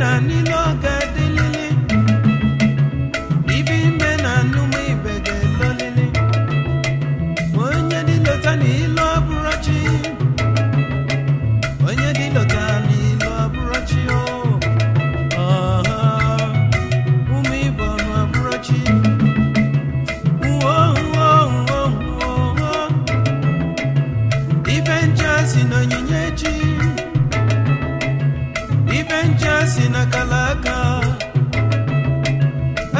na n'ile ọga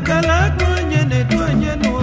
akala aka onye na-edu onye n'ụwa